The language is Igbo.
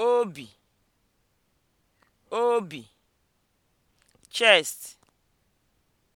obi obi chest